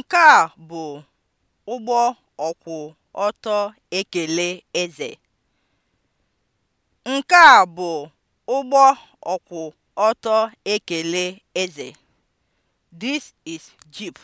Nke a bụ ụgbọ ọkwụ ọtọ ekele eze. Nke a bụ This is jeep.